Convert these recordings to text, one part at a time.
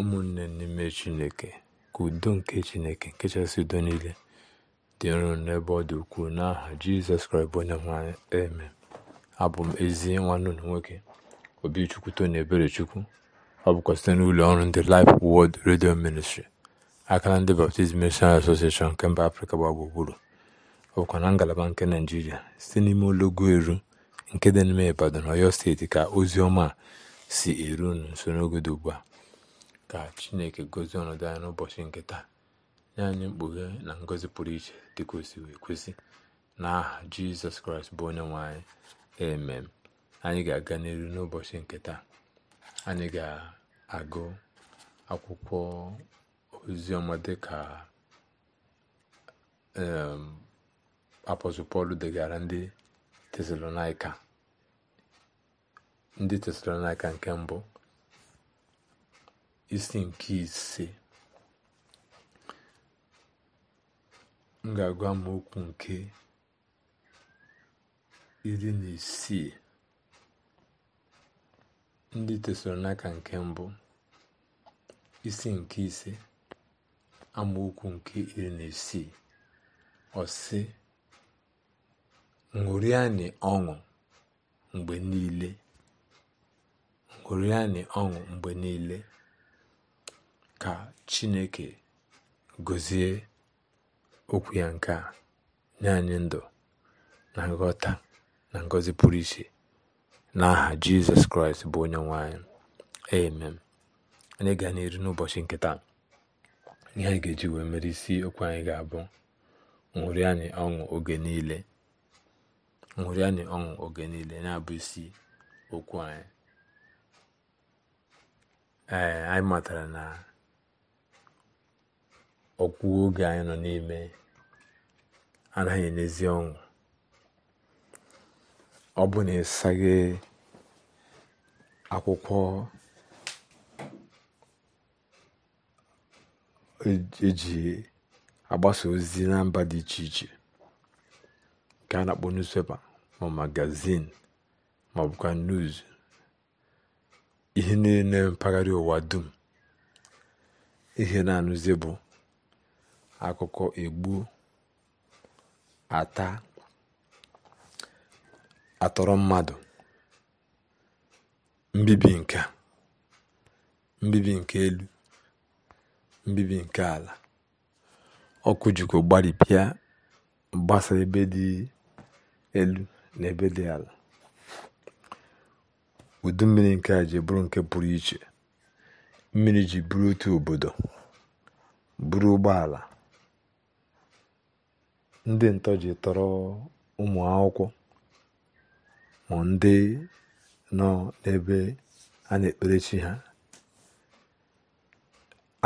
ụmụnne n'ime chineke ka udo nke chineke nke chasị udo niile dị nro n'ebe ọ dị ukwuu n'aha jizọs kraịst bụ onye nwanyị eme abụ m ezi nwanne ụlọ nwoke obichukwu ebere chukwu ọ bụkwa site n'ụlọ ọrụ ndị Life Word redio Ministry aka na ndị Baptist Missionary Association nke mba Afrịka gba gburugburu ọ bụkwa na ngalaba nke Naịjirịa site n'ime ologo eru nke dị n'ime Ibadan Ọyọ steeti ka ozi ọma si eru n'usoro nso dị ugbu a ka chineke gozie ọnọdụ anyị n'ụbọchị nke taa nye anyị mkpughe na ngọzi pụrụ iche dịka osi si wee kwesị n'aha jizọs kraịst bụ onye nwanyị emem anyị ga-aga n'elu n'ụbọchị nke taa anyị ga-agụ akwụkwọ oziọma dịka ka pọl degara ndị tesalonaika ndị tesalonaika nke mbụ isi nke ise m ga-agwa m okwu nke iri na isii ndị tesoro n'aka nke mbụ isi nke ise amaokwu nke iri na isii ọsị ṅụrịanị ọṅụ mgbe niile ṅụrịanị ọṅụ mgbe niile ka chineke gọzie okwu ya nke a nye anyị ndụ na nghọta na ngọzi pụrụ iche n'aha jizọs kraịst bụ onye nwanyị. anyị amen anyị ga na n'ụbọchị nke taa ihe anyị ga-eji wee mere isi okwu anyị ga-abụ Nwụrụ anyị ọṅụ oge niile anyị ọṅụ oge niile na-abụ isi okwu anyị ee anyị matara na ọkwụ oge anyị nọ n'ime anaghị nezie ọṅụ ọ bụ na ịsaghị akwụkwọ eji e agbasa ozi na mba dị iche iche nke a na-akpọ newspaper ma magazin ma ọbụkwa bụkwa news ihe niile mpaghara ụwa dum ihe na-anụzi bụ akụkọ egbu ata atọrọ mmadụ mbibi nke mbibi nke elu mbibi nke ala ọkụ jikọ gbaripịa mgbasa ebe dị elu na ebe dị ala udu mmiri nke a ji bụrụ nke pụrụ iche mmiri ji bụrụ otu obodo bụrụ ụgbọala ndị ntọji ji tọrọ ụmụ akwụkwọ ma ndị nọ n'ebe a na-ekpere chi ha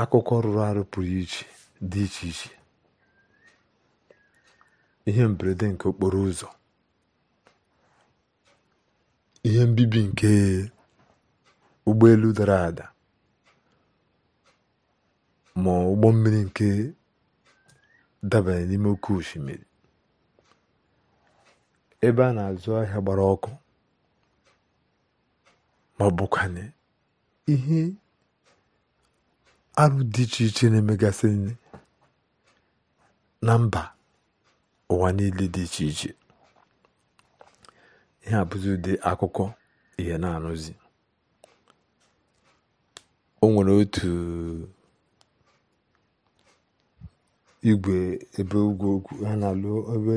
akụkọ rụrụ arụ pụrụ iche dị iche iche ihe mberede nke okporo ụzọ ihe mbibi nke ụgbọelu dara ada ma ụgbọ mmiri nke dabanye n'ime oke osimiri ebe a na-azụ ahịa gbara ọkụ ma bụkwanye ihe arụ dị iche iche na-emegasị na mba ụwa niile dị iche iche ihe abụzi ụdị akụkọ ihe na-anụzi o nwere otu igwe ebe ugwu okwu ha na-alụ ebe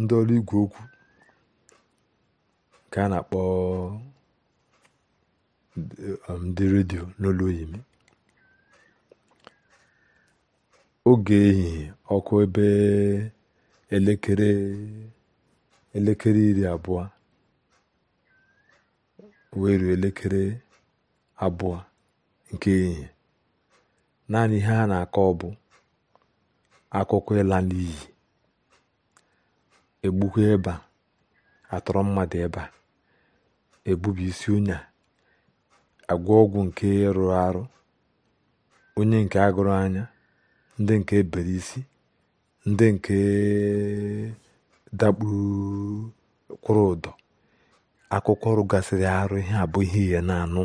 ndị ọrụ igwe okwu nke a na-akpọ um, ndị redio n'olu oyibo oge ehihie ọkụ ebe elekere elekere iri abụọ wee elekere abụọ nke ehihie naanị ihe ha na-akọ ọbụ. akụkọ ịla n'iyi egbukwa ịba atọrọ mmadụ ịba ebubi isi ụnya agwa ọgwụ nke ịrụ arụ onye nke agụrụ anya ndị nke ebere isi ndị nke dakpukwụrụ ụdọ akụkọ ọrụ gasịrị arụ ihe abụghị ihe ihe na-anụ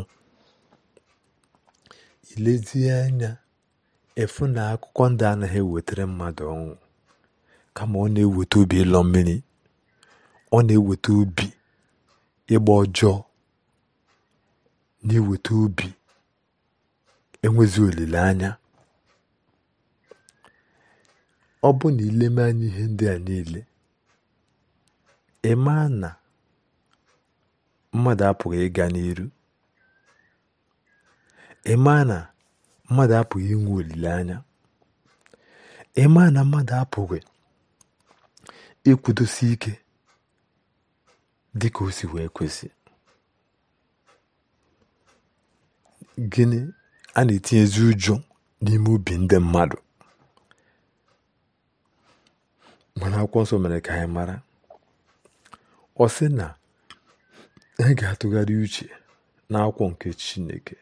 ilezianya efu na akwụkwọ ndị anaghị ewetara mmadụ ọnwụ kama ọ na-eweta obi ịlọ mmiri ọ na-eweta obi ịgba ọjọọ na-eweta obi enwezi olileanya ọ bụ na ileme anya ihe ndị a niile ịma na mmadụ apụghị ịga n'iru ịma na mmadụ apụghị inwe olileanya ịmaa na mmadụ apụghị ịkwụdosi ike dị ka o si wee kwesị gịnị a na etinye ezi ụjọ n'ime ubi ndị mmadụ mana akwụkwọ nsọ mere ka anyị mara ọ sị na anyị ga-atụgharị uche na n'akwụkwọ nke Chineke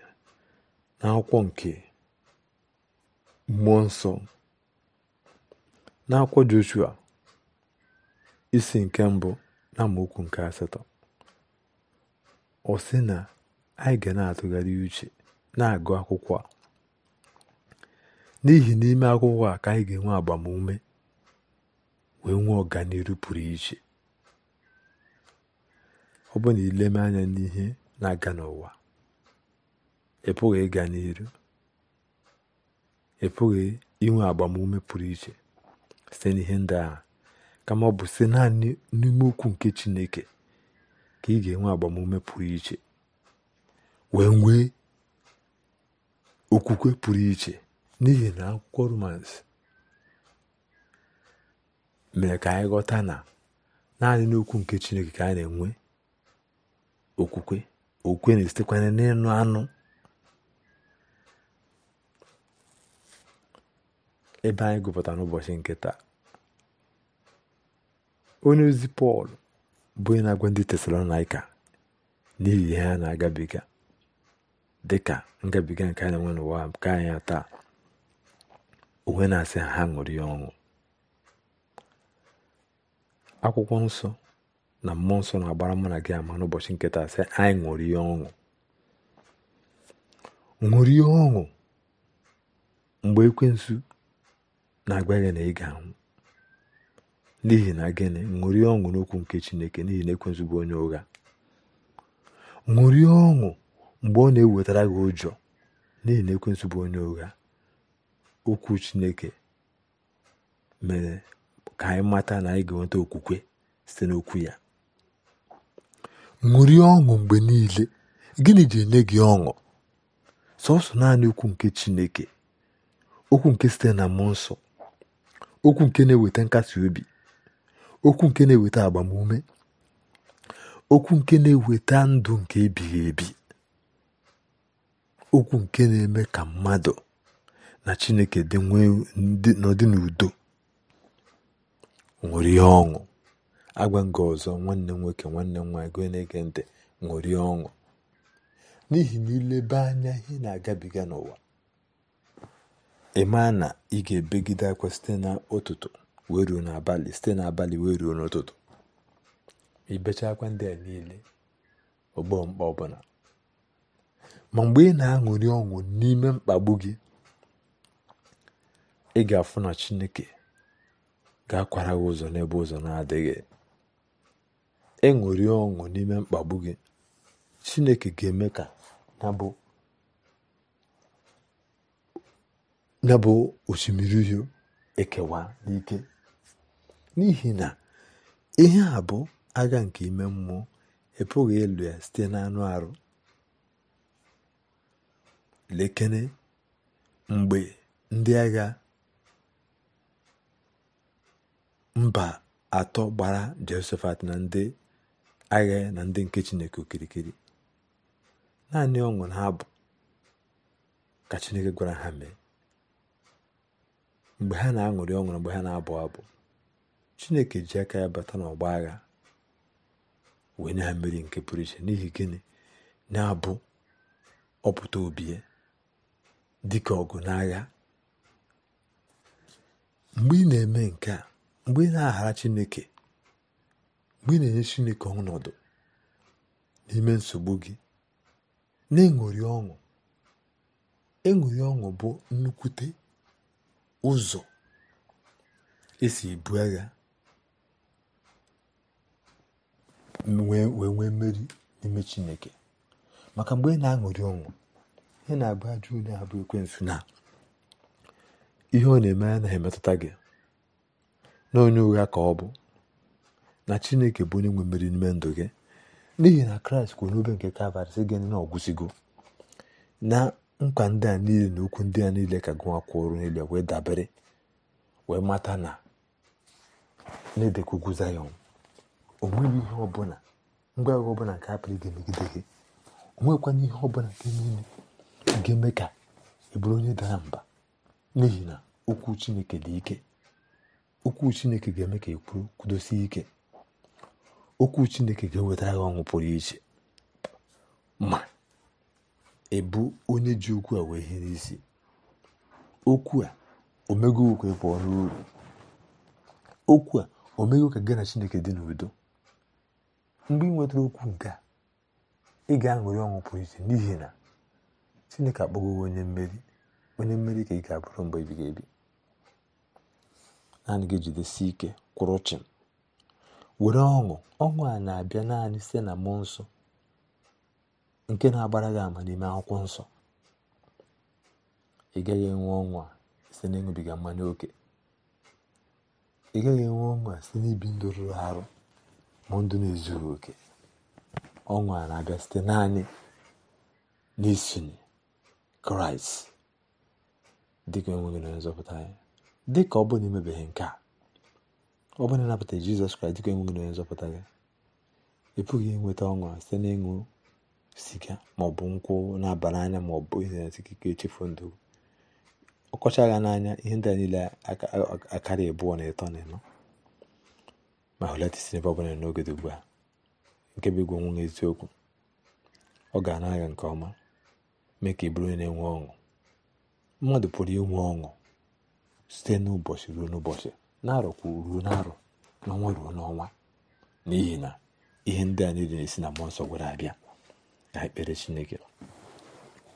n'akwụkwọ nke mmụọ nsọ na-akwọ Joshua isi nke mbụ na amaokwu nke asatọ ọ sị na anyị ga na-atụgharị uche na-agụ akwụkwọ a n'ihi n'ime akwụkwọ a ka anyị ga-enwe agbamume wee nwee ọganihu pụrụ iche ọ bụ na ileme anya n'ihe na-aga n'ụwa ị pụghị ịga n'iru ị inwe agbamume pụrụ iche site n'ihe ndị ahụ kama ọ bụ site naanị n'ime ukwu nke chineke ka ị ga-enwe agbamume pụrụ iche wee nwee okwukwe pụrụ iche n'ihi na akwụkwọ romans mere ka anyị ghọta na naanị n'okwu nke chineke ka a na-enwe okwukwe okwukwe na esitekwanye n'ịnụ anụ ebe anyị gụpụtara n'ụbọchị nke taa onye ozi pọl bụ na-agwa ndị tesalonaika n'ihi ihe ha na-agabiga dị ka ngabiga nke anyị nwe n'ụwa nke anyị taa onwe na-asị ha ha ṅụrụ ya ọṅụ akwụkwọ nsọ na mmụọ nsọ na-agbara mụ na gị ama n'ụbọchị nke taa sị anyị ṅụrụ ya ọṅụ ṅụrụ ya ọṅụ mgbe ekwensu na-agwa ya na ị ga-anwụ n'ihi na gịnị ṅụrie ọṅụ n'okwu nke chineke n'ihi na ekwensu bụ onye ụgha ṅụrie ọṅụ mgbe ọ na-ewetara gị ụjọ n'ihi na ekwensu bụ onye ụgha okwu chineke mere ka anyị mata na anyị ga-enweta okwukwe site n'okwu ya ṅụrie ọṅụ mgbe niile gịnị ji enye gị ọṅụ sọsọ naanị okwu nke chineke okwu nke site na mmụọ nsọ okwu nke na-eweta nkasi obi okwu nke na-eweta agbamume okwu nke na-eweta ndụ nke ebighị ebi okwu nke na-eme ka mmadụ na Chineke dị nwee n'ọdị n'udo ṅụrie ọṅụ agwa nga ọzọ nwanne nwoke nwanne nwa nwaanyị gị na-ege ọṅụ n'ihi na ileba anya ihe na-agabiga n'ụwa ịmaa na ị ga-ebegide akwa site n'ụtụtụ wee ruo n'abalị site n'abalị wee ruo n'ụtụtụ ibecha akwa ndị a niile ọgbọ mkpa ọbụla ma mgbe ị na aṅụri ọṅụ n'ime mkpagbu gị ị ga-afụ na chineke ga-akwara gị ụzọ n'ebe ụzọ na-adịghị ịṅụrị ọṅụ n'ime mkpagbu gị chineke ga-eme ka na bụ ya bụ osimiri uhie ekewa n'ike n'ihi na ihe a bụ agha nke ime mmụọ epụghị ịlụ ya site na anụ arụ lekene mgbe ndị agha mba atọ gbara Jehoshafat na ndị agha na ndị nke Chineke okirikiri naanị ọṅụ na abụ ka Chineke gwara ha mee mgbe ha na-aṅụrị ọṅụrụ mgbe ha na-abụ abụ chineke ji aka ya bata n'ọgba agha wee na ha mmeri nke pụrụ iche n'ihi gịnị na-abụ ọpụta obi ya dịka ọgụ n'agha mgbe ị na-eme nke a mgbe ị na-aghara chineke mgbe ị na-enye chineke ọnọdụ n'ime nsogbu gị na-eṅụrị ọṅụ eṅụrị ọṅụ bụ nnukwute Ụzọ esi èbu agha wee nwee mmeri n'ime Chineke. Maka mgbe ị na-aṅụrị ọnwụ ị na àgba ajọ onye à na na. ihe ọ na-eme ya na-emetụta gị N'onye onye ụgha ka ọ bụ. Na Chineke bụ onye nwe mmeri n'ime ndụ gị n'ihi na Kraịst kwuo n'obe nke Kalvarị sị gịnị na na nkwa ndị a niile na okwu ndị a niile ka gụnwa kwụrụ niile wee dabere wee mata na na-edekwa ugwu zayọn o nweghị ihe ọbụla ngwa agha ọbụla nke hapụrụ gị megide gị o nwekwana ihe ọbụla nke niile ga-eme ka ị onye dara mba n'ihi na okwu chineke dị ike okwu chineke ga-eme ka ị kwuru kwudosie ike okwu chineke ga-eweta agha ọṅụ pụrụ iche ma ịbụ onye ji okwu a wee ihe n'isi okwu a omego okwu ịkwa ọrụ uru okwu a omego ka gị na chineke dị n'udo mgbe ị nwetara okwu nke a ị ga-aṅụrị ọṅụ pụrụ iche n'ihi na chineke akpọgo onye mmeri onye mmeri ka ị ga-abụrụ mgbe ebighị ebi naanị gị jidesi ike kwụrụ chịm were ọṅụ ọṅụ a na-abịa naanị site na mmụọ nsọ nke na-agbara gị ama n'ime akwụkwọ nsọ ị gaghị enwe ọnwa site n'ịṅụbiga mmanya oke ị gaghị enwe ọnwa site n'ibi ndụ rụrụ arụ ma ndụ na-ezughị oke ọnwa na-abịa site naanị n'isonye kraịst dịka enweghị na nzọpụta anyị dịka ọ bụla emebeghị nke a ọ bụla ịnabata jizọs kraịst dịka enweghị na nzọpụta gị ị pụghị inweta ọnwa site n'ịṅụ siga maọbụ nkwụ na-abara anya maọbụ ihe na-esikike echefu ndụ ọkọcha gha n'anya ihe ndị a niile akarị abụọ na ịtọ na ịnọ ma hụlata isi n'ebe ọbụla n'oge dị ugbu a nke bụ igwe nwunye eziokwu ọ ga-ana aga nke ọma mee ka ị bụrụ na-enwe ọṅụ mmadụ pụrụ inwe ọṅụ site n'ụbọchị ruo n'ụbọchị na-arọkwu ruo na-arọ n'ọnwa ruo n'ọnwa n'ihi na ihe ndị a niile na-esi na mmụọ nsọ gwara abịa ekpere chineke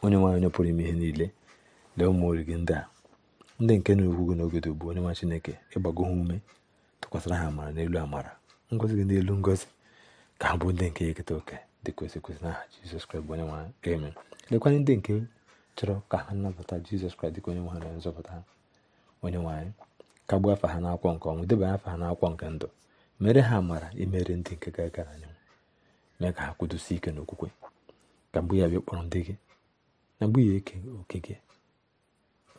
onye nwaanyị onye pụrụ ime ihe niile lee ụmụ origi ndị a ndị nke na-ekwu gị n'ogodo bụ onye nwa chineke ịgbago ha ume tụkwasịra ha amara n'elu amara ngozi gị n'elu ngozi ka ha bụ ndị nke eketa oke dị kwesị na aha jizọs kraịst bụ onye nwa amen lekwanye ndị nke chọrọ ka ha nabata jizọs kraịst dịka onye nwa ha na nzọpụta onye nwaanyị ka gbuo afa ha n'akwọ nke ọnwụ debanye afa ha n'akwọ nke ndụ mere ha amara imere ndị nke ga-aga na anyanwụ mee ka ha kwudosie ike n'okwukwe ka mgbe ya bịa kpọrọ ndị gị na mgbe ya eke oke gị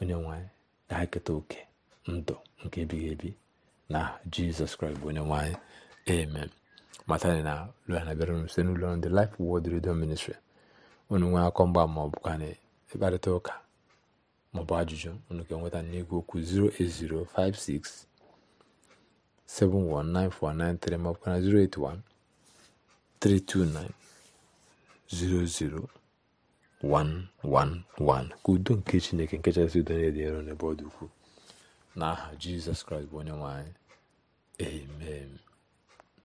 onye nwanyị na ha eketa oke ndụ nke ebighị ebi na jizọs kraịst bụ onye nwanyị amen matani na lụana bịara unu site n'ụlọ ndị Life Word Radio Ministry unu nwee akọ mgba ma ọ bụkwa na ịkparịta ụka bụ ajụjụ unu ga-enweta n'igwe okwu 08056719493 maọbụkwa 081 329 00111 ka udo nke chineke nke chasị udo na-ede ero n'ebe ọ dị ukwuu n'aha jizọs kraịst bụ onye nwanyị anyị amen